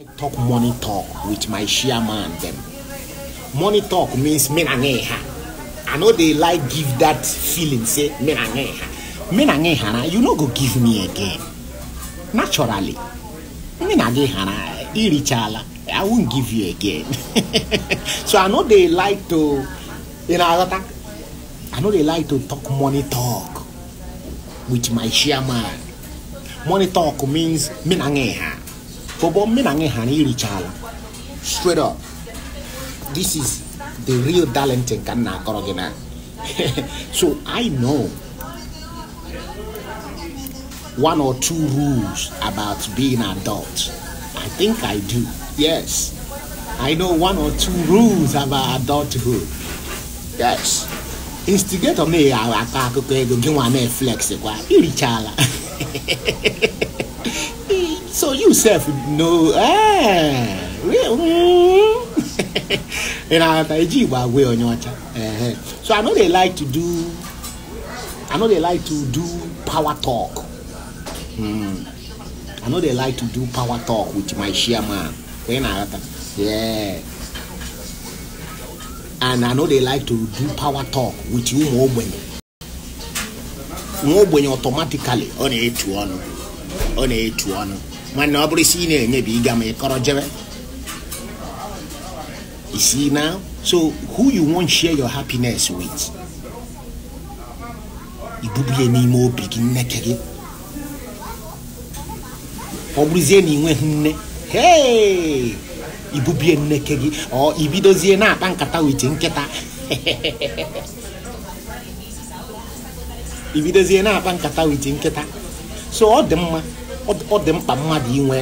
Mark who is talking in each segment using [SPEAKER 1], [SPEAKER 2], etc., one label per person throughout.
[SPEAKER 1] I talk money talk with my chairman them. Money talk means menangeha. I know they like give that feeling say menangeha. Menangeha you no go give me again. Naturally. Menangeha irichala. I won't give you again. so I know they like to you know I know they like to talk money talk with my chairman. Money talk means menangeha. Bobo Minange Hani Richala. Straight up. This is the real talent in Ghana Korogena. so I know one or two rules about being adult. I think I do. Yes. I know one or two rules about adulthood. Yes. Instigator me I akụkọ ego gị nwa na-eflex kwa irichala so you self know, ah, really? and I Taiji were way on your time. Uh-huh. So I know they like to do, I know they like to do power talk. Hmm. I know they like to do power talk with my chairman. When I, yeah. And I know they like to do power talk with you more when automatically on a two on on a two on nwanne ọ bụrụ isi ị na-enyebi ịga ma ịkọrọ jebe you see now so who you want share your happiness with ibubulie n'ime obi gị nneke gị ọ bụrụzie na ịnweghị nne hei ibubie nneke gị ọ ibidozie na-akpa nkata wit nkịta ibidozie na-akpa nkata wit nkịta so ọ dị mma ọ dị mkpa mmadụ inwe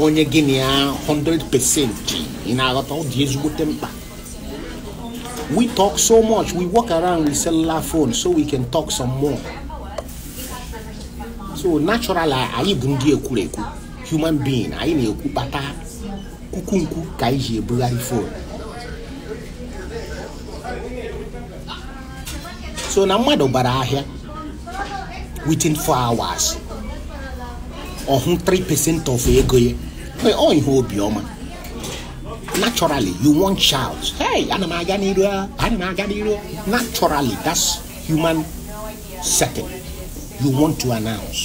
[SPEAKER 1] onye gịnị na ya 100% ị na-aghọta ọ dị ezigbote mkpa we talk so much we walk around with cellular phone so we can talk some more so natural anyị bụ ndị ekwurekwu human being anyị na-ekwu kpata kukunkwu ka anyị ji ebugharị phone. so na mmadụ bara ahịa within 4 hours ọhụ 3% of ego ya ọ ihe obiọma naturally you want not shout hey ana m aga n'iru ana m aga n'iru naturally that's human setting you want to announce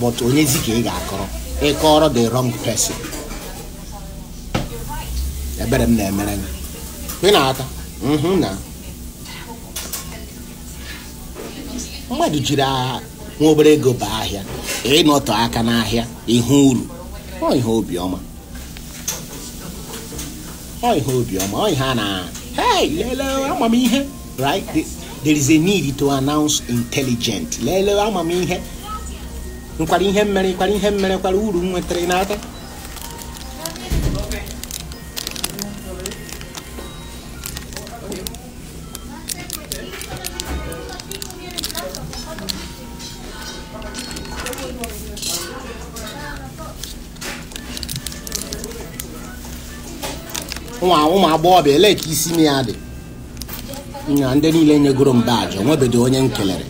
[SPEAKER 1] but when ka ị ga-akọrọ ịkọrọ the wrong person ebere m na-emere gị ị na-ata na mmadụ jiri agha nwa obere ego bụ ahịa ịnọtọ aka n'ahịa ihe uru ọ ihe obiọma ọ ihe obiọma ọ ihe a na lele amamihe right there is a need to announce intelligent lele amamihe nkwara ihe mmere nkwara ihe mmere kwara uru m nwetara n'aka ụmụ agbọghọbịa ele ka isi ya dị na ndị niile nyegoro m baajị onwebedo onye m kelere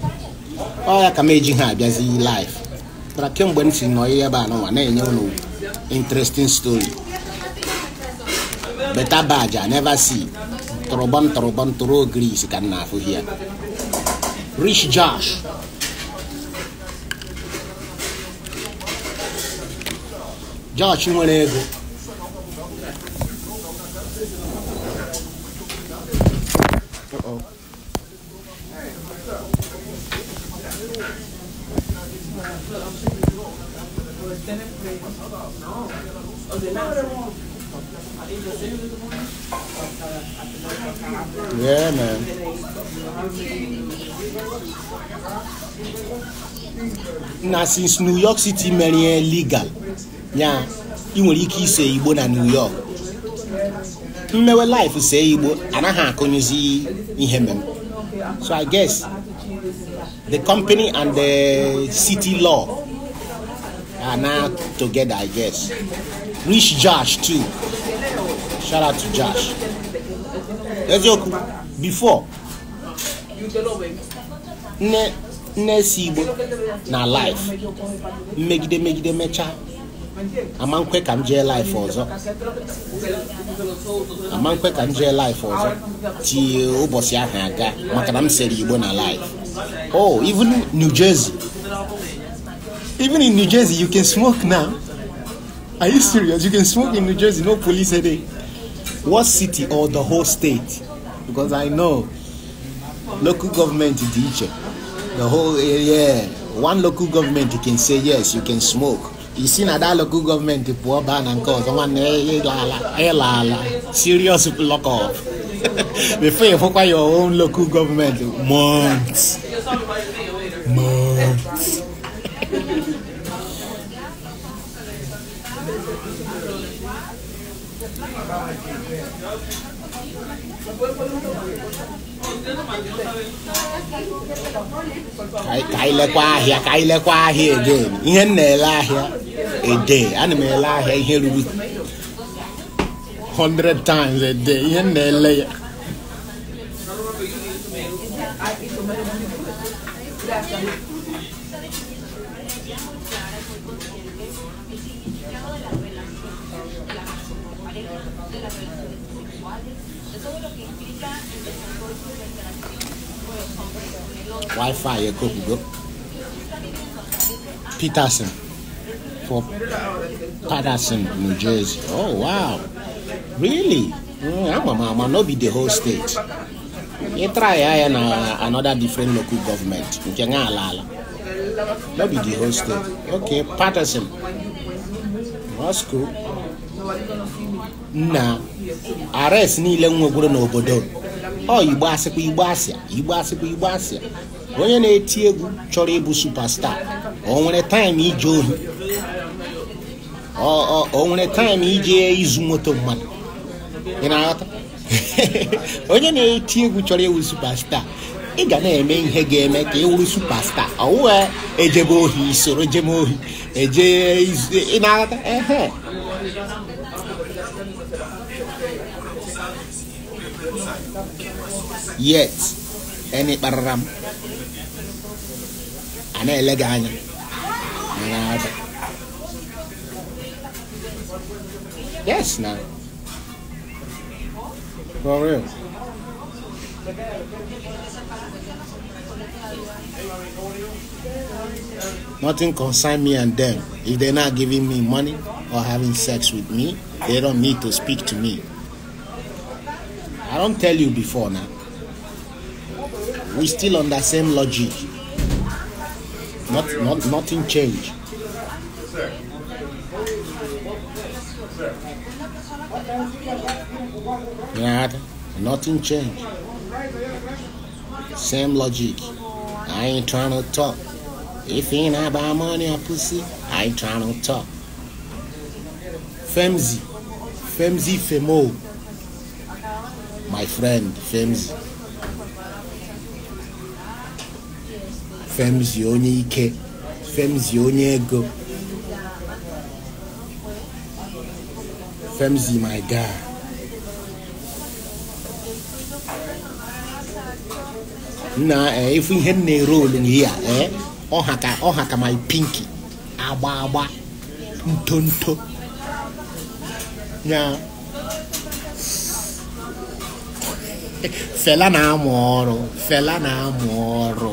[SPEAKER 1] ọ ka m eji ha abịazi live tara kemgbe m si nọ ihe ebe a n'ụwa na-enye ụlọ interesting stori beta baajị a never see tụrụbọm tụrụ ogiri isi ka m na-afụ rich josh jọọchị nwere Yeah, man. Now, since New York City, many illegal ya ị nwere ike ise igbo na new york mmewe life see igbo anaghị akụnyezi ihe mmemme so i guess the company and the city law are now together i guess rich josh too shout out to josh eziokwu before nne nne si igbo na life mmegide megide mechaa amankwe ka m jee life ọzọ amankwe ka m jee life ọzọ tie ụbọchị ahụ aga maka na m sere igbo na life oh even new jersey even in new jersey you can smoke now are you serious you can smoke in new jersey no police headache what city or the whole state because i know local government dị iche the whole area one local government can say yes you can smoke isi na dalụkụ gọọmenti pụọ baa na nke ọzọ nwanne ịla ala serious block off before ịfụkwa your own local government months months Thank you. I anyị lekwa ahịa ka anyị lekwa ahịa again ihe m na-ele ahịa ede ana m ele ahịa ihe ruru 100 times a day ihe m na-ele ya wifi yɛ kokugo peterson for patterson new jersey oh wow really mm, ama mama no be the whole state yɛ try ayɛ na uh, another different local government nke ŋa alaala no be the whole state okay patterson that's cool na arrest niile nwegwuru n'obodo ọ igbo asịkwa igbo asịa igbo asịkwa igbo asịa onye na-eti egwu chọrọ ịbụ supastaa o nwere taịm ije ohi o nwere taịm ije izu moto mmadụ ị na-aghọta onye na-eti egwu chọrọ ịwụ supastaa ị ga na-eme ihe ga-eme ka ị wụrụ supastaa ọwụwa ejebe ohi soro jeme ohi eje ị na-aghọta ehe yet any ịkparara m a yes now. for real Nothing concern me and them. If they're not giving me money or having sex with me, they don't need to speak to me. I don't tell you before now we still on that same logic. Not, not, nothing changed. Yeah, nothing changed. Same logic. I ain't trying to talk. If he ain't about money or pussy, I ain't trying to talk. Femzi. Femzi Femo. My friend, Femzi. femzie onye ike femzi onye ego femzi my guy na ịfụ eh, ihe m na-ere olu n'ihe a eh, ọha ka my pinky agba agba ntonto ya fela na-amụ ọrụ fela na-amụ ọrụ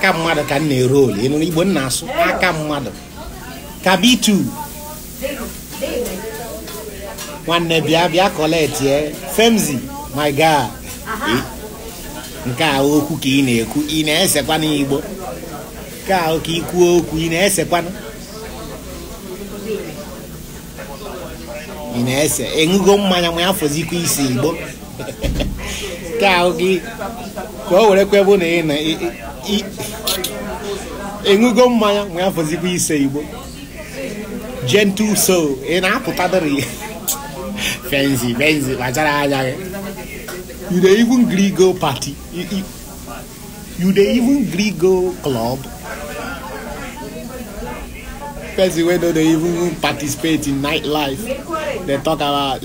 [SPEAKER 1] aka mmadụ ka m na-ere ole ịnụrụ igbo asụ aka mmadụ ka nwanne bịa bịa koletie femzi my god nke a okwu ka ị na-ekwu ị na-esekwana igbo nke a ka ikwuo okwu ị na-esekwana ị na-ese enwugo mmanya ma afọzikwa isi igbo nke a gị ka o were kwebe na ị na ịṅụgo mmanya nwee afọzikwa ise igbo gentle soul ị na-apụtadịrị fenzi fenzi kpachara anya gị you dey even gree go party you dey even gree go club person wey no dey even participate in nightlife dey talk about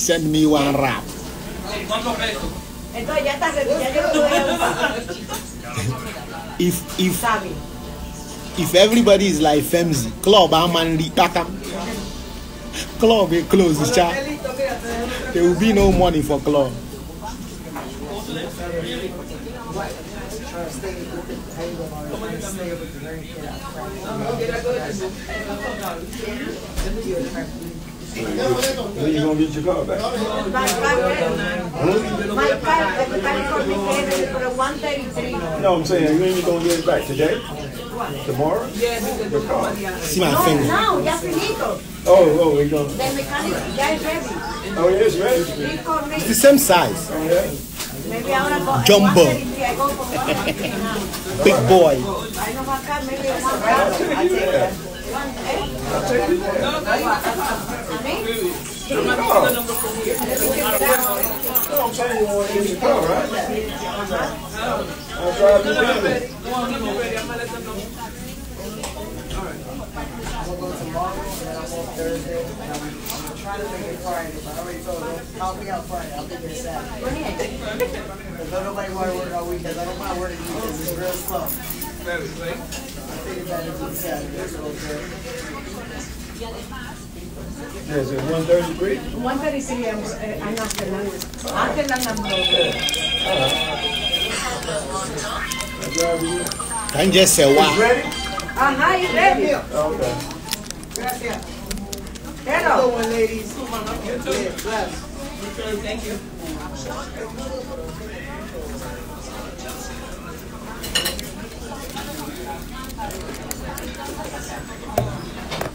[SPEAKER 1] send me one rap. Entonces ya está, If, if, if everybody is like Femzi, club, I'm and Takam. Club, it eh, closes, child. There will be no money for club you're going to get your car back. My for for No, I'm saying, when you going to get it back? Today? Tomorrow? Yeah, because car. See my no, finger. No, ya finito. Oh, oh, we gonna. The mechanic, ya ready. Oh, it is ready. It's the same size. Oh, yeah. Maybe Jumbo. Big boy. I i I'll take you there. Eh. No, I'm saying you want to the car, right? I'll drive you down there. I'm going to let them right. I'm going to Thursday, and I'm, I'm trying to make it Friday, but I already told them, help me out Friday. I'll be there Saturday. Because don't nobody want to work I don't mind working weekends. It's real slow. I think about it on Saturday. It's yeah, is it 133? 133, uh, I'm, not the number. I'm the number. All right. Can just say wow. You ready? Ajá, uh-huh, you ready? Okay. Gracias. Hello. Good ladies. You too. Yeah, Thank you. Thank you.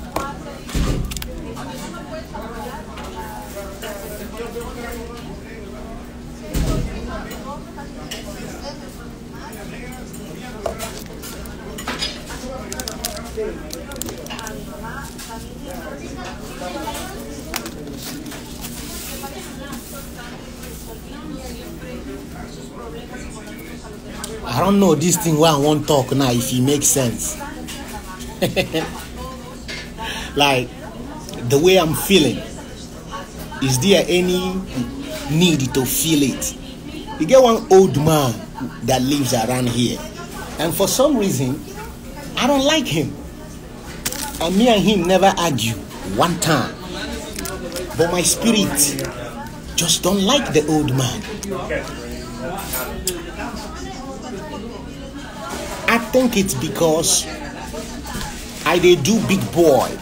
[SPEAKER 1] I don't know this thing where I won't talk now if it makes sense. like the way I'm feeling? Is there any need to feel it? You get one old man that lives around here, and for some reason, I don't like him. And me and him never argue one time. But my spirit just don't like the old man. I think it's because I they do big boy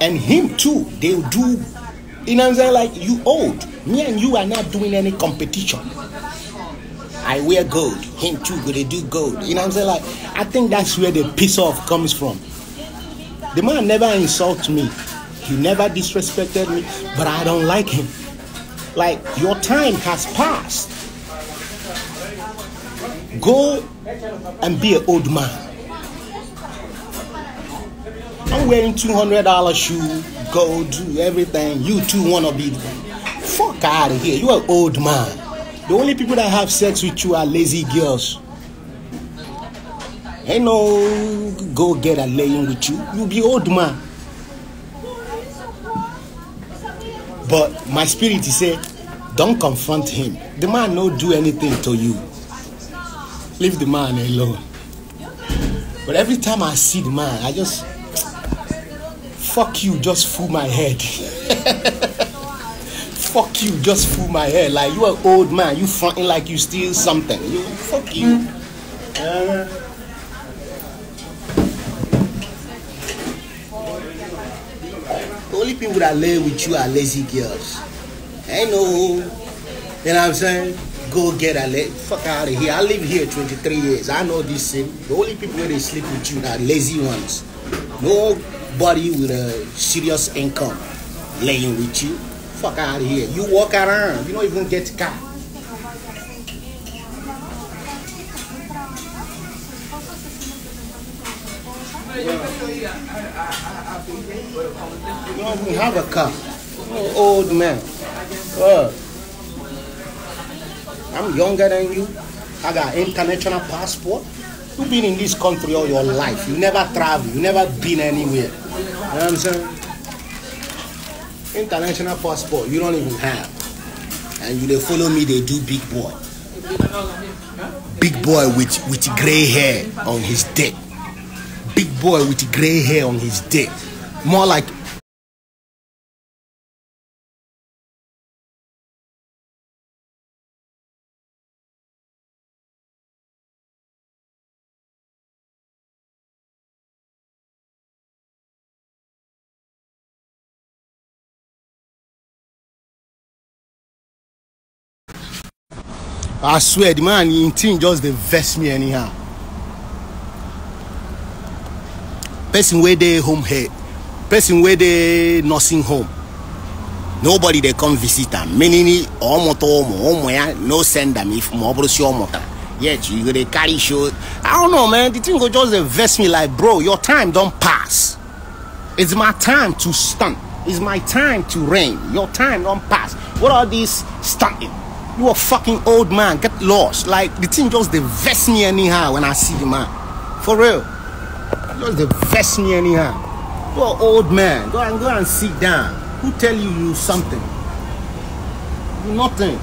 [SPEAKER 1] and him too they do you know what i'm saying like you old me and you are not doing any competition i wear gold him too go they do gold you know what i'm saying like i think that's where the piss off comes from the man never insults me he never disrespected me but i don't like him like your time has passed go and be an old man I'm wearing $200 shoe, gold, everything. You 2 wanna be. Fuck out of here. You're an old man. The only people that have sex with you are lazy girls. Ain't no go get a laying with you. You be old man. But my spirit is say, don't confront him. The man no do anything to you. Leave the man alone. But every time I see the man, I just fuck you just fool my head. fuck you just fool my head. Like you are old man, you fronting like you steal something. You fuck you. Uh, uh-huh. the only people that live with you are lazy girls. I know. You know what I'm saying? Go get a fuck out of here. I live here 23 years. I know this thing. The only people where they sleep with you are lazy ones. No Body with a serious income laying with you. Fuck out of here. You walk around, you don't even get a car. You don't even have a car. old man. I'm younger than you. I got international passport. You've been in this country all your life. You never travel. You never been anywhere. You know what I'm saying? International passport, you don't even have. And you they follow me, they do big boy. Big boy with, with grey hair on his dick. Big boy with grey hair on his dick. More like i swear the man him thing just dey vex me anyhow person wey dey home here person wey dey nursing home nobody dey come visit am meaning ọmụta ụmụ ụmụ ya no send am if ma ọ bụrụ si ọ mụtara yet you go dey carry show i don't know man the thing go just dey vex me like bro your time don pass it's my time to stand it's my time to reign your time don pass what are these standing You a fucking old man. Get lost. Like the thing just they me anyhow when I see the man. For real. Just they vest me anyhow. You an old man. Go and go and sit down. Who tell you you something? nothing.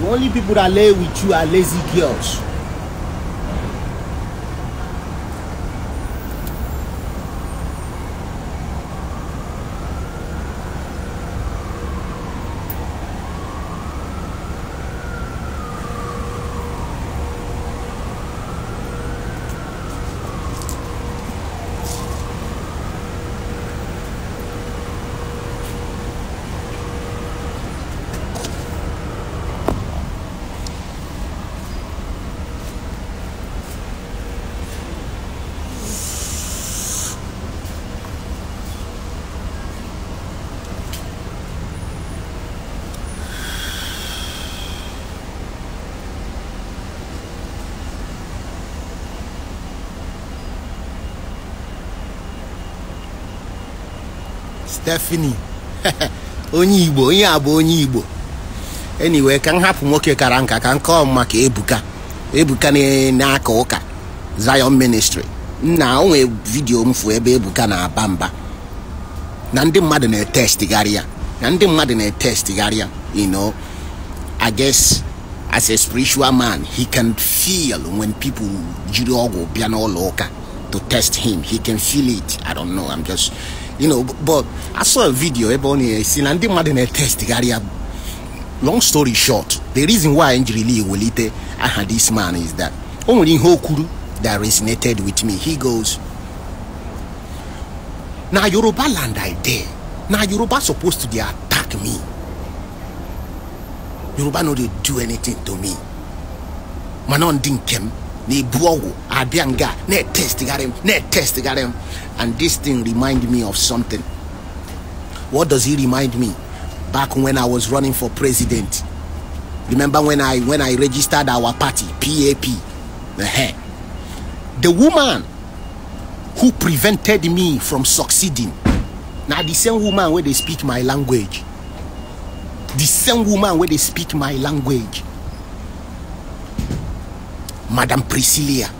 [SPEAKER 1] The only people that lay with you are lazy girls. Stephanie onye Igbo onye a onye Igbo anyway ka m hapụ nwoke kara nka ka nke kọọ maka Ebuka Ebuka na-aka ụka Zion Ministry nna onwe vidiyo mfu ebe Ebuka na-aba mba na ndị mmadụ na-etestigharị ya na ndị mmadụ na-etestigharị ya you know I guess as a spiritual man he can feel when people jiri ọgwụ bịa n'ụlọ ụka to test him he can feel it I don't know I'm just you know but i saw a video ebe ọ na-esi na ndị ndi a test. long story short the reason why njirili ewelite aha this man is that only Hokuru that resonated with me he goes "Now yoruba land i dare. Now yoruba supposed to attack me yoruba no dey do anything to me mana ndị nke m na ne ọgwụ abịa ne na-etestigharị and this thing remind me of something what does he remind me back when i was running for president remember when i when i registered our party pap uh-huh. the woman who prevented me from succeeding now the same woman where they speak my language the same woman where they speak my language madam priscilla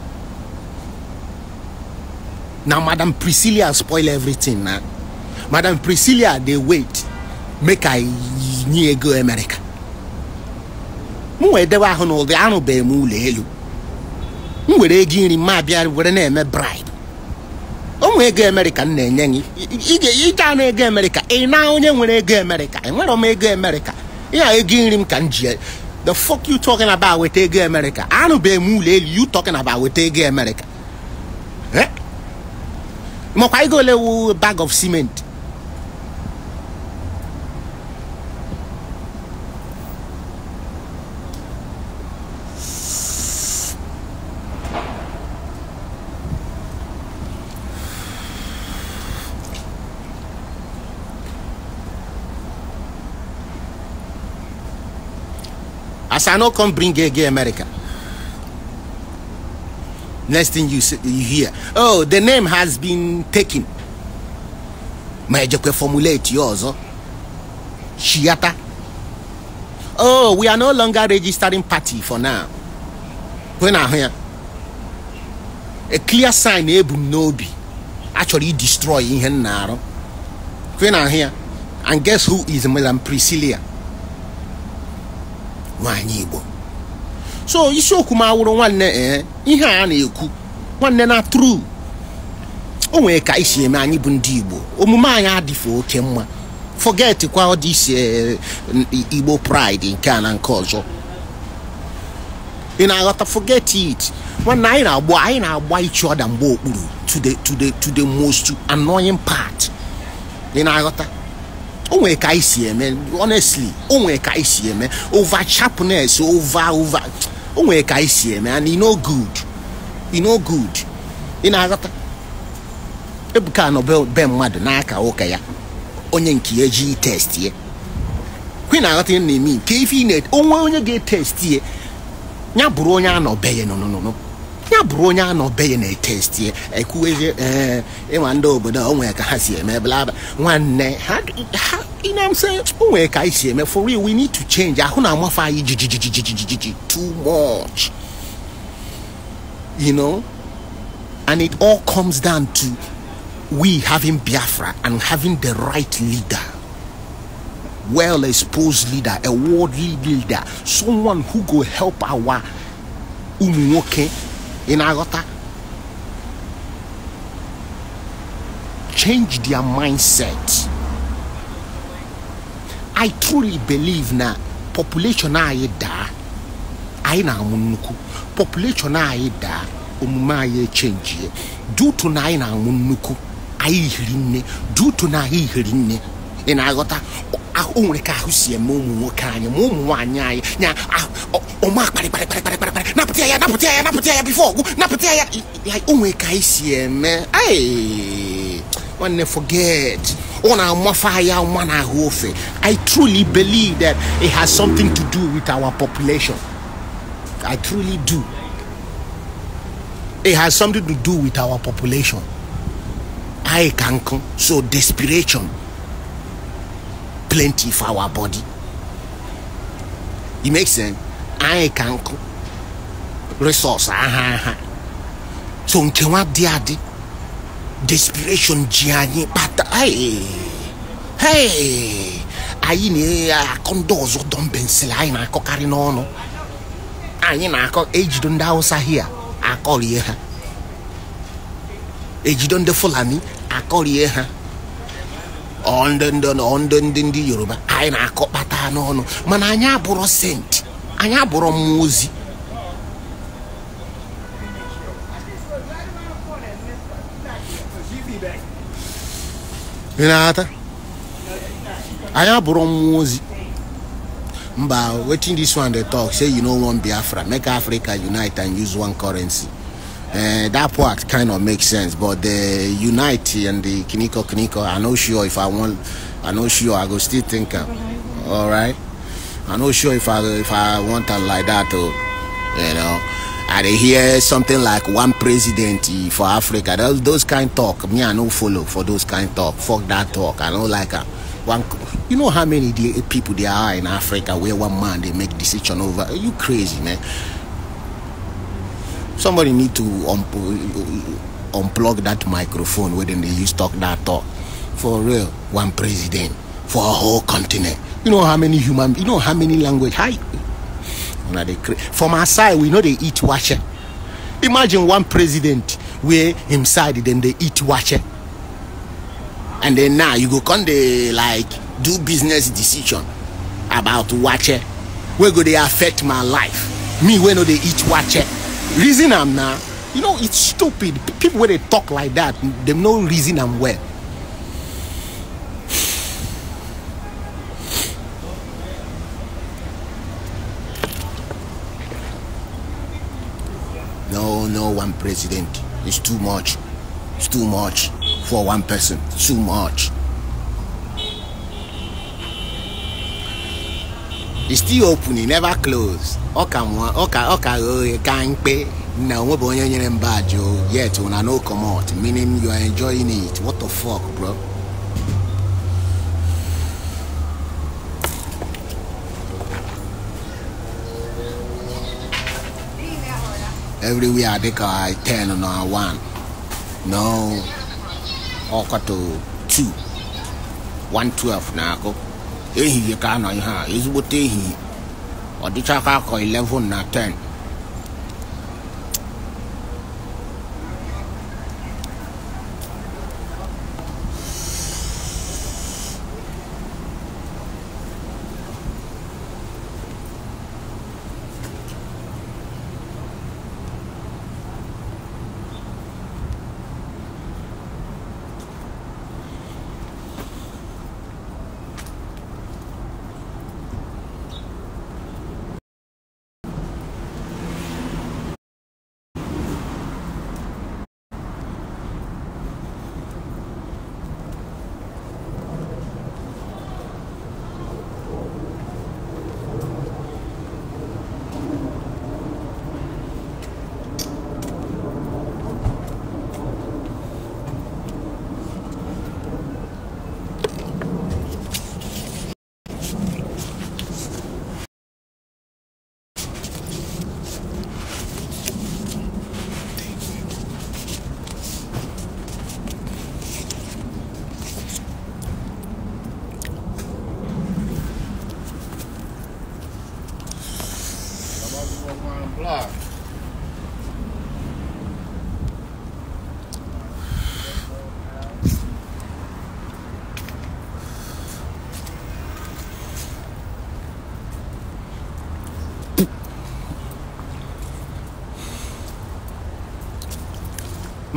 [SPEAKER 1] na madam priscilla spoil everything na madam priscilla dey wait make i nye ego america nwere wee dewe na ụdị arụbeghị m ụlọ elu m were ego nri ma abịa were na-eme bribe onwe ego amerịka m na-enye gị ije anụ ego amerịka ị e na onye nwere ego amerịka enwere m ego amerịka ya ego nri m ka m ji e. the fuck you talking about weta ego amerịka anụbeghị m ụlọ elu you talking about weta ego amerịka eh? mọ̀kwá ego ole bag of cement as i no come bring gay gay america Next thing you, you hear, oh, the name has been taken. just formulate yours. Oh? Shiata. Oh, we are no longer registering party for now. When I hear a clear sign, Ebum eh, Nobi actually destroy in oh. When I hear, and guess who is Melan Priscilla? Wanyigbo. so isiokwu m awụrụ nwanne ee eh, ihe a na-ekwu nwanne na tru o nwere ka isi eme anyị bụ ndị igbo omume anyị adịfe oke mma forget kwa ọ isi eh, igbo pride nke a na nke ọzọ ị na-aghọta forget it nwanne anyị na-agba anyị na-agba ichi ọda mgbe okpuru to the to the to the most annoying part ị na-aghọta o ka anyị si eme honestly o ka anyị si eme over sharpness over over o nwere ka anyị si eme and no good no good ị na-aghọta ebuka anọ be mmadụ n'aka ụka ya onye nke ya ji test ya kwe na-aghọta ihe na-eme nke ife ị na-onwe onye ga-etesti ya ya bụrụ onye anọ be ya nụnụnụnụ ya bụrụ onye anọ be ya na-etesti ya ekwuweghị ee eh, nwa ndị obodo o nwere ka ha si eme blaba nwanne ha You know what I'm saying? can I see me? For real, we need to change. I don't know how too much. You know? And it all comes down to we having Biafra and having the right leader. Well exposed leader, a worldly leader, someone who go help our umunwoke in Agota change their mindset i truly believe na population anyị daa anyị na-amụ nnukwu population anyị daa omume anyị echenjie dutu na anyị na-amụ nnukwu anyị hiri nne dutu na anyị hiri nne ị na-aghọta o nwere ka ahụ si eme ụmụ nwoke anyị ma ụmụ nwaanyị anyị nya ọma kparịkparịkparịkparịkparị napụta ya napụta ya napụta ya bifo ọgwụ napụta ya o nwere ka anyị si eme nwanne forget ona mwafaya mwana hofe i truly believe that it has something to do with our population i truly do it has something to do with our population i can come so desperation plenty for our body it makes sense i can come resource Uh ah, huh. Ah, ah. so nkewa dị adị desperation ji anyị kpata anyị na-akọ ah, ndị ọzọ dọmbensil anyị na-akọkarị n'ọnụ anyị na-akọ ejido ndị hausa hia akọrie ha ejido ndị fulani akọrie ha ọndị ndị ndị yoruba anyị na-akọ kpata n'ọnụ mana anyị abụrụ senti anyị abụrụ mmụọ ozi i have na-ata anyị abụrụ waiting mba this one they talk say you know one biafra make africa unite and use one currency uh, that part kind of makes sense but the unite and the kiniko kiniko i not sure if i want. i not sure i go still think all right i not sure if i if i want to like that oh, you know. I dey hear something like one president for Africa. Those, those kind talk, me I no follow for those kind talk. Fuck that talk. I don't like am. One, you know how many people there are in Africa where one man they make decision over. Are you crazy, man? Somebody need to un um, uh, uh, unplug that microphone where they use talk that talk. For real, one president for a whole continent. You know how many human. You know how many language. Hi, create from our side we know they eat washe imagine one president where him side they eat washe and then now you go come they like do business decision about washe Where go they affect my life me where know they eat washe reason i am now, you know it's stupid people where they talk like that they no reason i am well no one president. It's too much. It's too much for one person. too much. It's still open, it never closed. Ọka nwa ọka ọka oye ka mkpe na onwe bụ onye nyere mba ajụ yet una no comot meaning you are enjoying it. What the fuck bro? everywhere I take I ten and I one. No ọkọ to two one twelve na akụ ehihie ka anọ ihe Is ezigbote ehihie ọdịcha aka akọ eleven na ten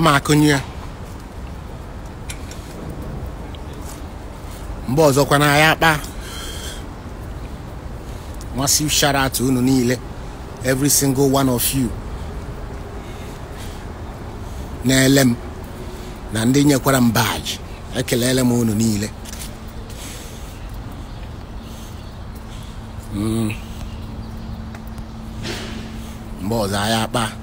[SPEAKER 1] makụnye ya mgbe ọzọkwa na akpa nwasi shout out unu niile every single one of you na-ele m na ndị nyekwara m baji ekelele m unu niile hmm. mgbe ọzọ anyị akpa